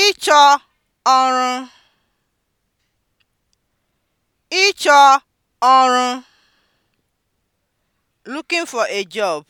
ịchọ ọrụ ịchọ ọrụ (looking for a job)